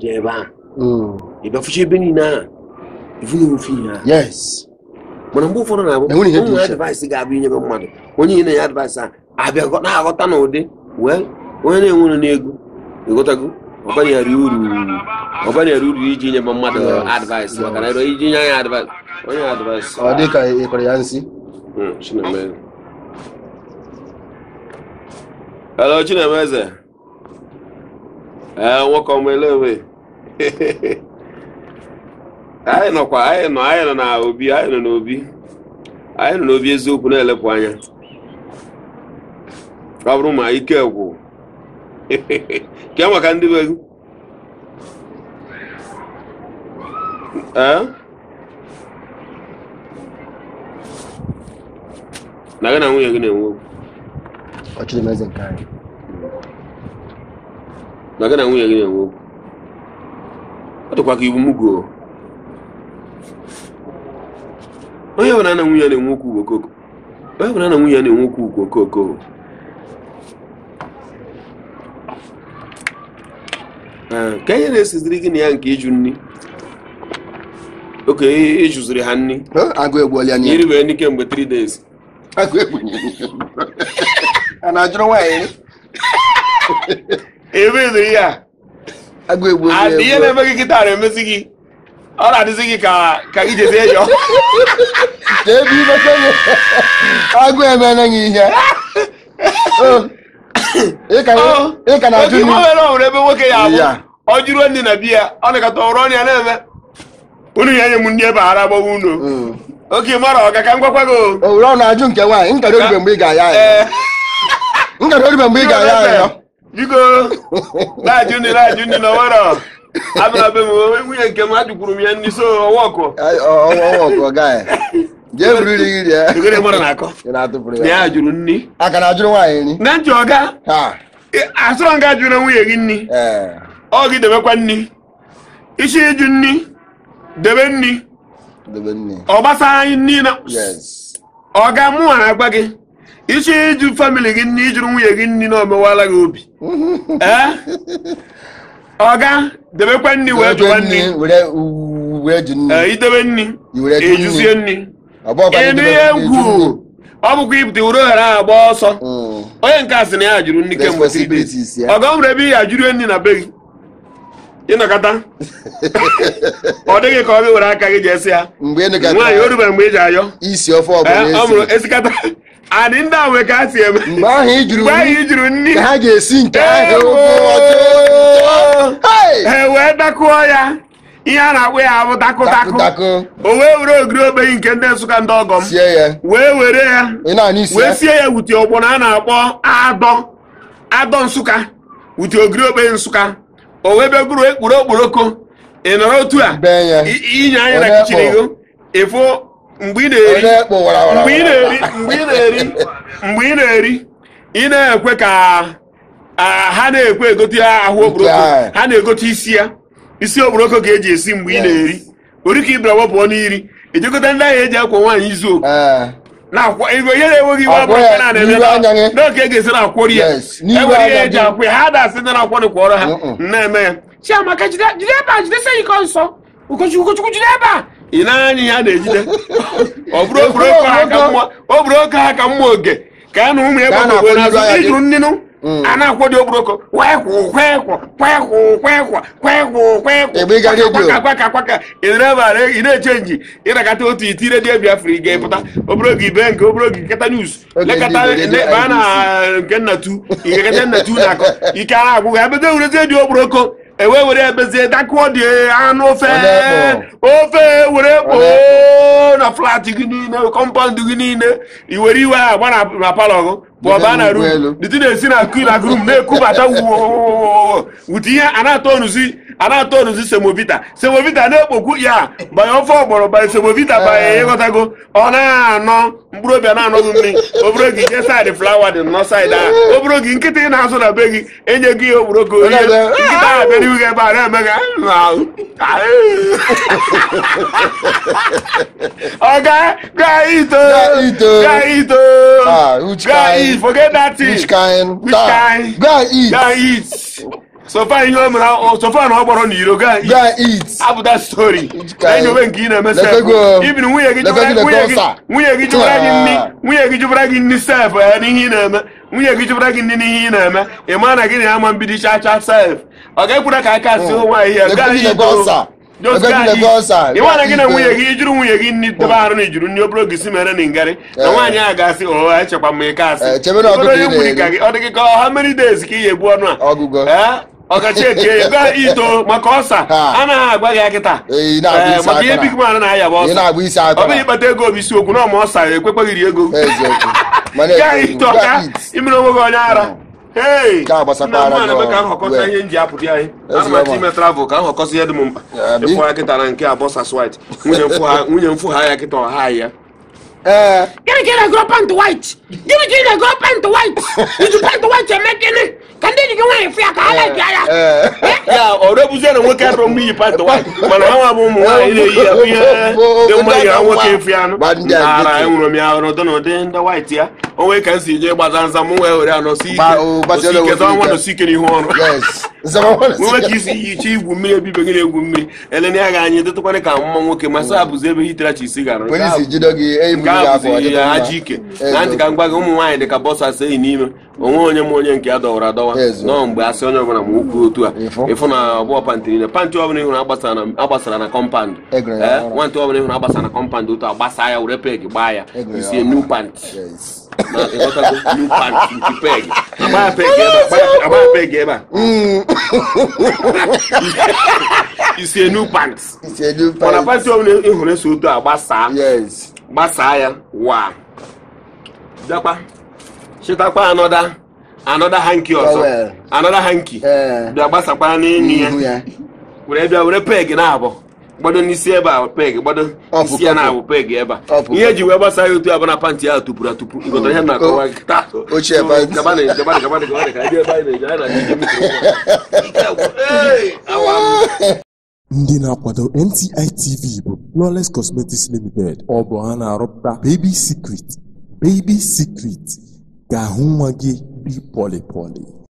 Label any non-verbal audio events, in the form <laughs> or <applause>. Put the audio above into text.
deɛ ɛba yɛbɛfohyɛ bɛni no a ɛfunu mu fii ha yes mɔnambofo no naɔmu advice ga abɛ nyɛ bɛmmado onye yi na yɛ advice a abɛkɔ na aghɔta na ode well onye na enwere na ego ɛghɔtago ɔbɛne yɛre uru ɔbɛne yɛre uru iji nyɛ bɛmmado advice maka na ɛdɔ iji nyɛ anyɛ advice onye advice ɔde ka ɛkɔrɔ ya nsi chinemeze hello chinemeze ee nwoke ọmụ elewe <laughs> anyị nọkwa anyị nọ anyị nọ na anyị nọ n'obi anyị nọ n'obi eziokwu na-elepụ anya ọ bụrụ ma ike gwụ <laughs> ke maka ndị be na gị na nwunye gị na-enwe okwu na gị na nwunye gị na-enwe okwu tụkwa gị iwu onye ọbụla na nwunye na-enwe okwu okoko onye ọbụla na nwunye na-enwe okwu ukwu okoko eh, ka ihe na-esiziri gị na ya nke ịjụ nri oke ịjụziri ha nri iri wee n'ike mgbe 3 days a na agụ egbu onye ihe na-eme gị kịta na emesi gị ọ na-adịzi gị ka ka ijezie yọ ebe imekere agụ emela gị ihe <laughs> oh. ịka na ajụ nwere ọhụrụ ebe nwoke ya abụ ọ jụrụ ndị na biya ọ nakọta ọrụ ọnya na-eme unu ya nye m ndị ebe ara agbawa unu mm. oke mara ọga ka m gwakwa gị owere ọ na-ajụ nke nwaanyị nkara oribe mgbe ị ga-aya ya oribe eh. mgbe ị ga-aya ya biko na-ajụ ndị na-ajụ ndị na nwere abịara nwunye nke m ha m ya ndị so ọnwa ọkụ jee buru iri iri ya ya jụrụ nri aka na ajụrụ nwaanyị nri na nchọ ọga asụrọ nga ajụrụ nwunye gị nri ọ gị debekwa nri isi ịjụ nri debe nri ọ gbasa anyị nri na ọga mụ na agwa gị ichi ịjụ famili gị nne ijuru nwunye gị nri na gị obi ọga <laughs> eh? debekwa nri wee jụwa nri eh, idebe nri ejuzie nri ịnụ ihe ngwu ọ bụkwa ibute uru ohere ahụ agba ọsọ hmm. onye nke asị na ya jụrụ nri kemgbe ọga nwere ebe ya ajụrụ nri na be gị ịnọkọta <laughs> ọ dịghị ka ọ gị were aka gị jesi ya nwaanyị o rubere mgbe ị ji ayọ isi ofe eh, e ọ bụla esikata anị ndị a nwe ka a si eme mgbe ahụ i juru nri ka ha ga-esi nke ahụ ha wee dakụọ ya ihe a na akpụ ya abụ takụtakụ o wee were ogiri ogbenyi nke ndị nsụka ndị ọgọ m wee were ya wee sie ya wuti ọgbọ na a na-akpọ adọ adọ nsụka wuti ogiri ogbenyi nsụka o wee begoro ekpuru okporoko ị nọrọ otu a inye anya na kichin ego ịfụ mgbe ị na-eri mgbe ị na-eri mgbe ị na-ekwe eri na-eri mgbe ị ị na ka ha na-ekwe egote ahụ okporoko ha na-egote isi ya isi okporoko ga-eji esi mgbe ị na-eri ori ka ibra wepụọ n'iri ejekọta ndị ahịa eji akwa nwaanyị izu oke eh. ihe na-enweghị iwe abụrụ nke na-eme n'oge e ga-esi na akwọrị ya enwere e ihe eji akwụ ya ha dasị ndị na-akwọrị kwọrọ ha na-eme ya chiamaka jide ebe a jidesi iko nsọ ụkọchukwu jide ebe a ị na-anya ihe a na-ejide ọ bụrụ oke ha ka mma oge ka a na ụmụ egbe n'ogwe n'azụ ijuru nnịnụ mm. a na-akwọ dị obroko na-echenji ịnakọta otu iti redio biafra ga-epụta obere nke obere oge a na na na ewe were ebezie dakwuo dị anụ ofe ofe were kpoo na flat gị niile kọmpaụnd gị niile iwere iwe a agba na palọ gụ bụ ọba na rum dịtụ na-esi na kila grum na-ekubata wute ihe a na-atọ onuzi a na-atọ onuzi semovita semovita na-ekpokwu ya banye ofe ọgbọrọ banye semovita banye eh. ịghọtago ọ na-anọ mkpụrụ obi na-anọghị mmiri obere gị jee saịdị flawa dị nọ saịdị a obere gị nkịta ị na-azụ na be gị enye gị ihe ka onye nkịta ahụ bịara ihu gị ebe a na-eme gị ọga <laughs> gaa ito gaa ito gaa it ah, forget that thing which kind gaa it gaa it sofa ihe o mere sofa na ọ gbọrọ n'iro gaa eat abụta stori anyị onwe nke ị na-emesa ibiri nwunye gị nwunye gị jụbara gị nri nwunye gị jụbara gị nri sef ya n'ihe ị na-eme nwunye gị jụbara gị nri n'ihe ị na-eme ị maa na gị na ama mbido cha cha sef ọ ga-ekwura ka aka si nwaanyị ya gaa ịwa na gị na nwunye gị ijuru nwunye gị nri debe arụ na ijuru nri obere ogisi mere na ngarị na nwaanyị ahụ ga-asị ụha echekwa m ị kasị onye nwunye ka ọ dị gị ka ka ị ya egbu ọnụ a ọkachi eche ego ito maka ọsa anaghị agwa gị akịta eh, maka ihe big man na-aya bụ ọsa ọ bụghị ịkpata ego obi si okwu na ọma ọsa ekwekweghịrị ego ito ka imere onwe gị onye ara eme ka nhọkọta ihe nji apụta anyị anamata ime travel ka nhọkọsị ihe dị m mkpa ịfụ ya kịta na nke abụọ sas white nwunye mfu ha ya kịta ọha ya eh. gịnị ka ị na-agụrụ pant white gịnị ka ị na-agụrụ pant white iji pant white eme gịnị ka ndị Eh, eh. eh. ọdọbụzie na nwoke atọ mgbe iyi pat mana ha nwa bụ ụmụ nwaanyị na-eyi ya ihe dị mma yiri nwoke efu anụ ara enwere m ya ọrụ na ụdị ndị waịtị ya o nwee ka m si jee gbaza nza m wee were anọ si ike ọnwa nọsi ike n'ihu ọrụ nwe ka isi chi igwu mmiri ebibe gị na-egwu mmiri elena ya ga anyị dịtụkwana ka mma nwoke masa e bụzi ebe hiterachi isi gara ya aji ike na ntị ka m gị ụmụ nwaanyị dị ka bọsụ asị enyi n'ime onwe onye m onye nke ya dọwara adọwa nọọ mgbe asị onye ọbụla ma okwu otu a ịfụ na ọbụọ pantịrị na pantị ọbụla ịhụrụ agbasara na kọmpand e eh, nwantị ọbụla ịhụrụ agbasara na kọmpand otu a gbasa ya were peg gbaa ya e isie new pant na ịghọtago new pant nke peg agbaa peg ebe a <laughs> isi enu pants mana pants ọbụla ị hụrụ eso otu a gbasaa gbasaa ya wa bịakwa chetakwa anọda anọda hanki ọzọ anọda hanki eh. bịa gbasakwa n'enyi ya were bịa were peg na abụọ gbado n'isi ebe a peg gbado isi ya na-abụ peg ebe a ihe eji wee gbasa ya otu abana pantị ahụ tụpụrụ atụpụ ngọtara ihe na-akọwa ndị na-akwado NTI TV bụ Flawless Cosmetics Limited ọ bụ ha na-arụpụta Baby Secret Baby Secret ga-ahụ nwa gị dị pọlịpọlị